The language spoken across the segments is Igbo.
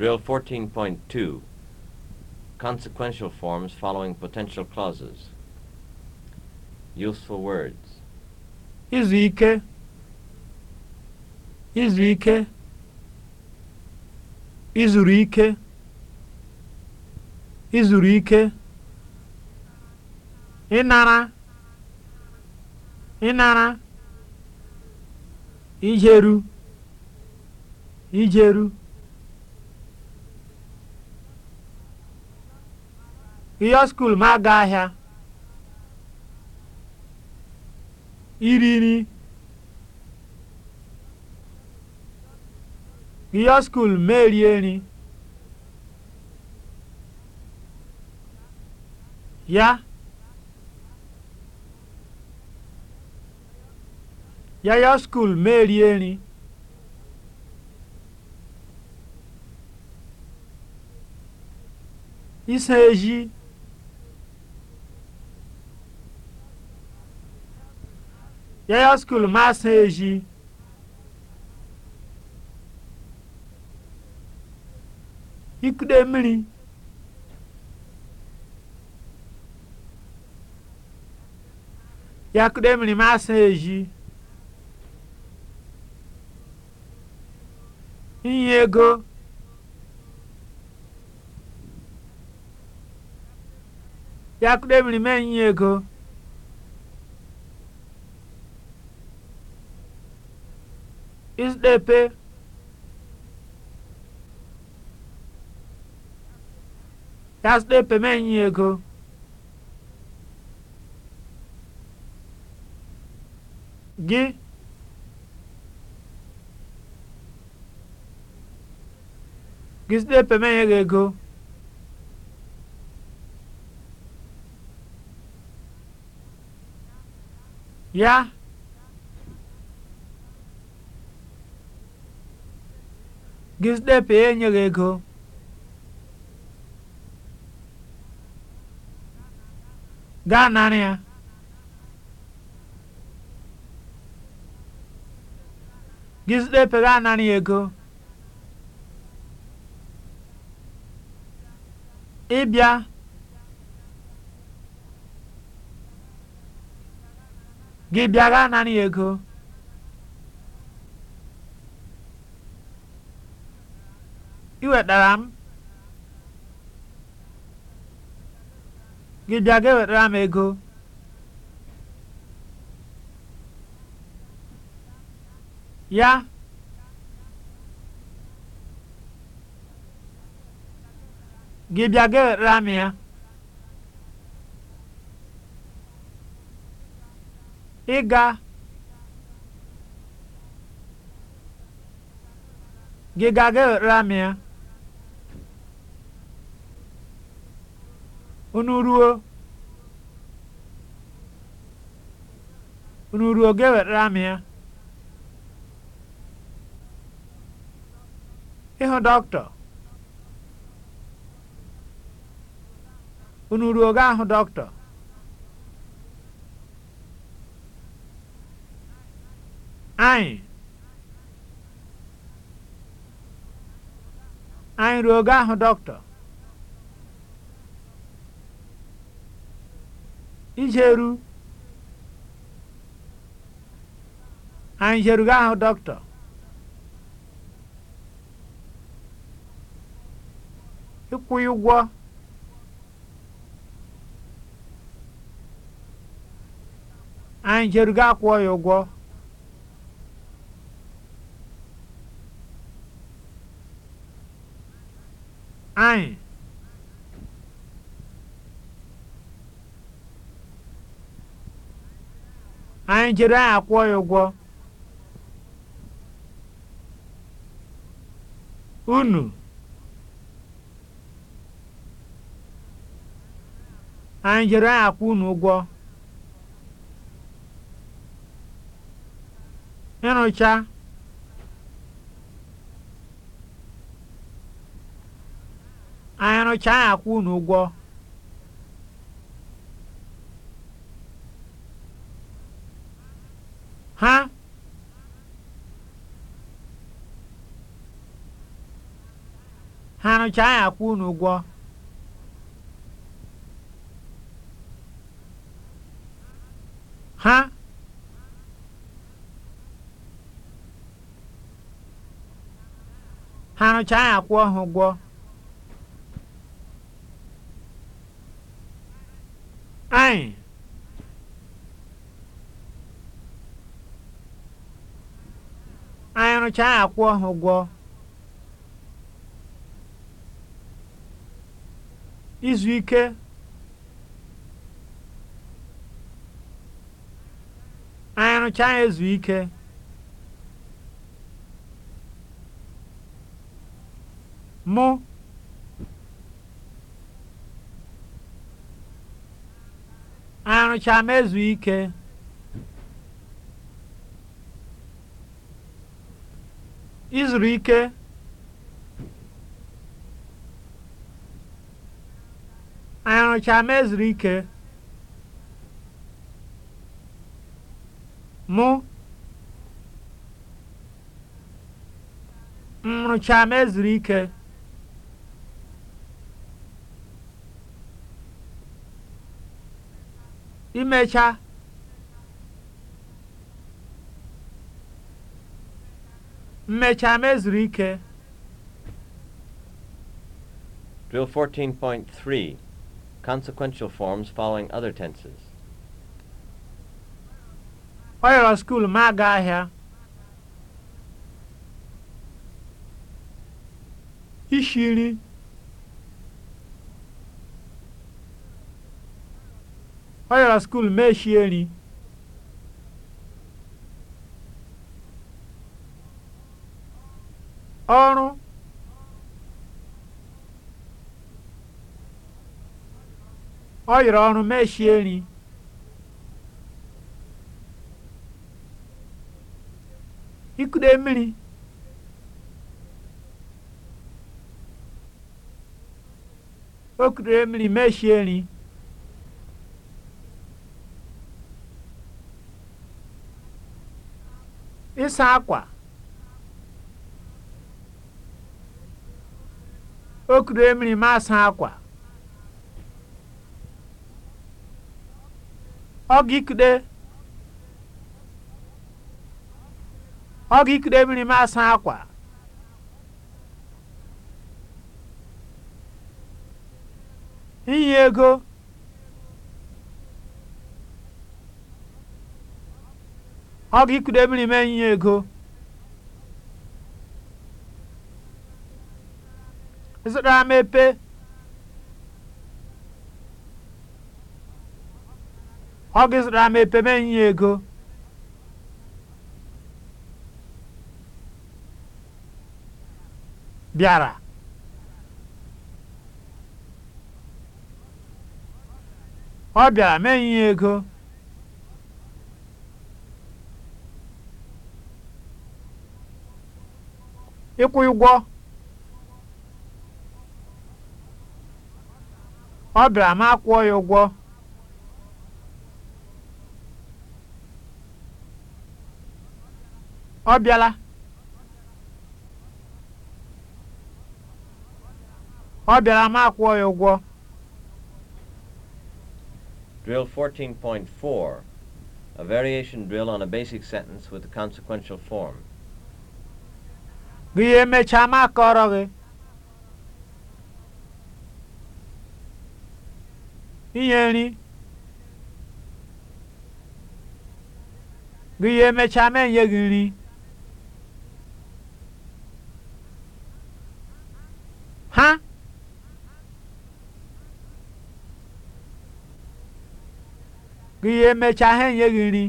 Drill 14.2 Consequential forms following potential clauses. Useful words. Izu ike. Izu ike. Inara, ike. Ịnara. Ijeru. Ijeru. ịyọ skuul ma aga ahịa iri nri ịyọ skuul ma erie nri ya ya skul skuul ma erie nri isa eji Yaya skul maasị eji. Ikude mmiri. Yakude mmiri maasị eji. Inye ego. Yakude mmiri mee inye ego. mkpepe ya sịkpepe m ego gị gị sịkpepe m enye gị ego ya Giuseppe enyeghị ego. Gaa nara ya. Giuseppe gaa nara ya ego. Ịbịa. Gị bịa gaa nara ya ego. I wetara m gị bịa ga ewetara m ego ya gị bịa ga ewetara m ya ịga gị ga ga ewetara m ya unu ruo unu ruo ga-ewetara m ya ịhụ dọktọ? unu ruo ga ahụ dọktọ, anyị anyị ruo ga ahụ dọktọ? ijeru anyị ga ahụ dọkịta ịkwụghị ụgwọ anyị ga akwụọ ya ụgwọ jere akwụ ya ụgwọ unu anyị akwụ unu ụgwọ ịnụcha anyị akwụ unu ụgwọ ha ha nụcha anyị akwụ unu ụgwọ ha ha nụcha anyị akwụ ha ụgwọ anyị arụchaa akwụ ụgwọ izu ike anụcha arụchaa ezu ike mụ arụchaa ezu ike izuru ike anyị rụchaa ezuru ike mụ m rụchaa ezuru ike imecha mmecha mezuru ike Drill 14.3 Consequential forms following other tenses. oyoro yọrọ ma aga ahịa. Ishi nri. Ọ yọrọ skuul ma eshie nri. ọrụ ọ ọrụ mechie nri ikude mmiri o kudere mmiri mechie nri ịsa akwa o kuru mmiri m asa akwa Ọgụ ọgikide mmiri m asa akwa inye ego ọgikide mmiri m inye ego zụtara m ọ gị zụtara mepe epe ego bịara ọ bịara me nye ego ịkwụ ụgwọ Ọ bịara m akwụọ ya ụgwọ. Ọ bịala. Ọ bịara ya ụgwọ. Drill 14.4, a variation drill on a basic sentence with a consequential form. Gị emechaa m akọrọ gị. inye nri gị ya emechaa ma enye gị nri ha gị ya emechaa ha enye gị nri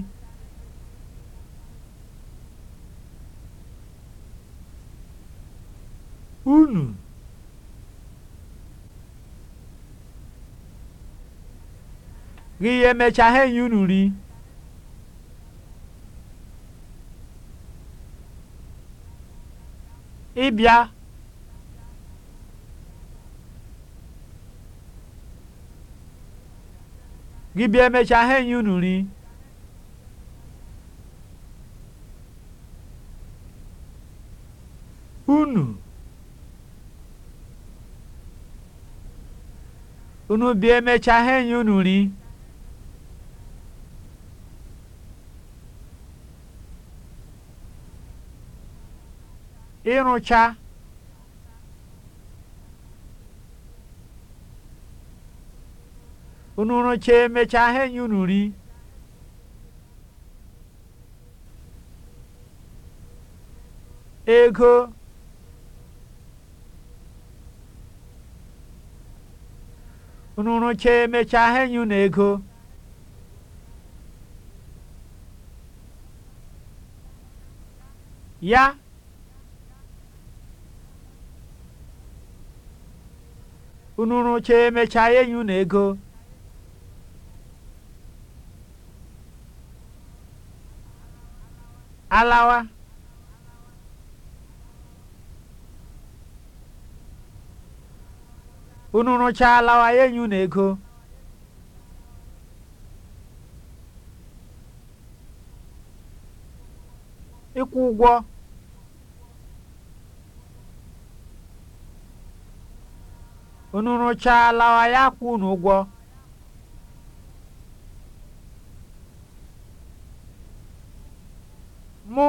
gị ya emecha ha enyi unu ri ịbịa gị bịa emecha ha enyi unu ri unu unu bịa emecha ha enyi unu ri ịrụcha unu rụcha emechaa ha enye unu ri ego unu rụcha emechaa ha enye unu ego ya unu rụcha emechaa enyi unu ego alawa unu rụcha alawa enyi unu ego ịkwụ ụgwọ Unu rụchaala ya kwụ n'ụgwọ, mụ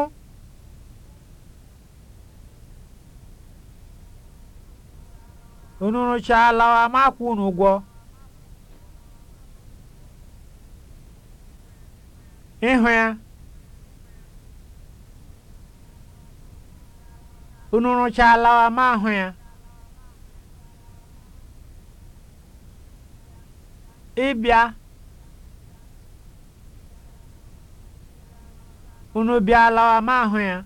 unu rụchaala m akwụ unu ịhụ ya unu rụchaala ma hụ ya ịbịa unu lawa ma ahụ ya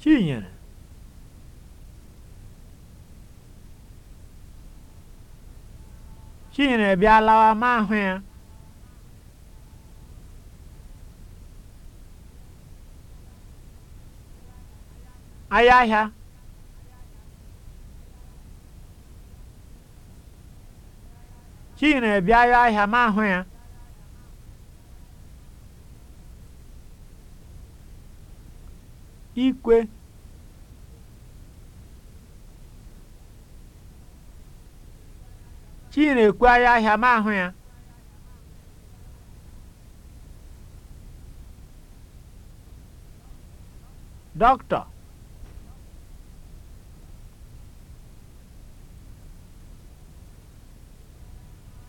Chinyere Chinyere lawa ma ahụ ya ahịa ahịa Chidi na-abịaru e ahịa ma ahụ ya. Ikwe Chidi na-ekwegharị ahịa ma ahụ ya. Dọkịta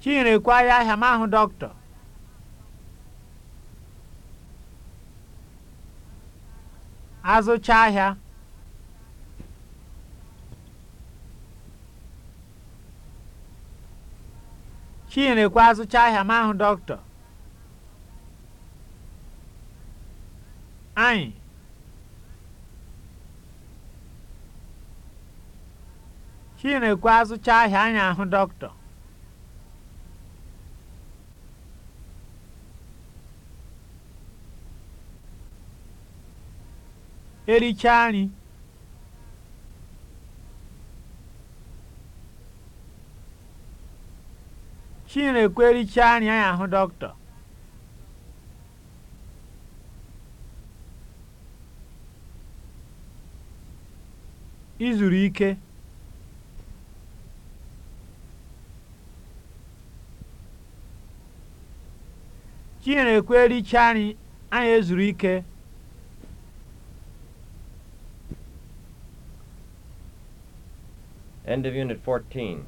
Chinyere kwaya ahịa m ahụ dọkịta. Azụcha ahịa. Chinyere ekwu azụcha ahịa m ahụ dọkịta. Anyị. Chinyere ekwu azụcha ahịa anyị ahụ dọkịta. erichaa chi Chinekwe erichaa nri anyị ahụ dọkịta izuru ike Chinekwe erichaa nri anyị ezuru ike End of Unit 14.